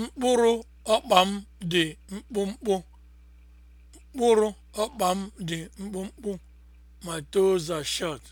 Mkpụrụ ọkpa m dị mkpụmkpụ. Mkpụrụ ọkpa m dị mkpụmkpụ. My toes are short.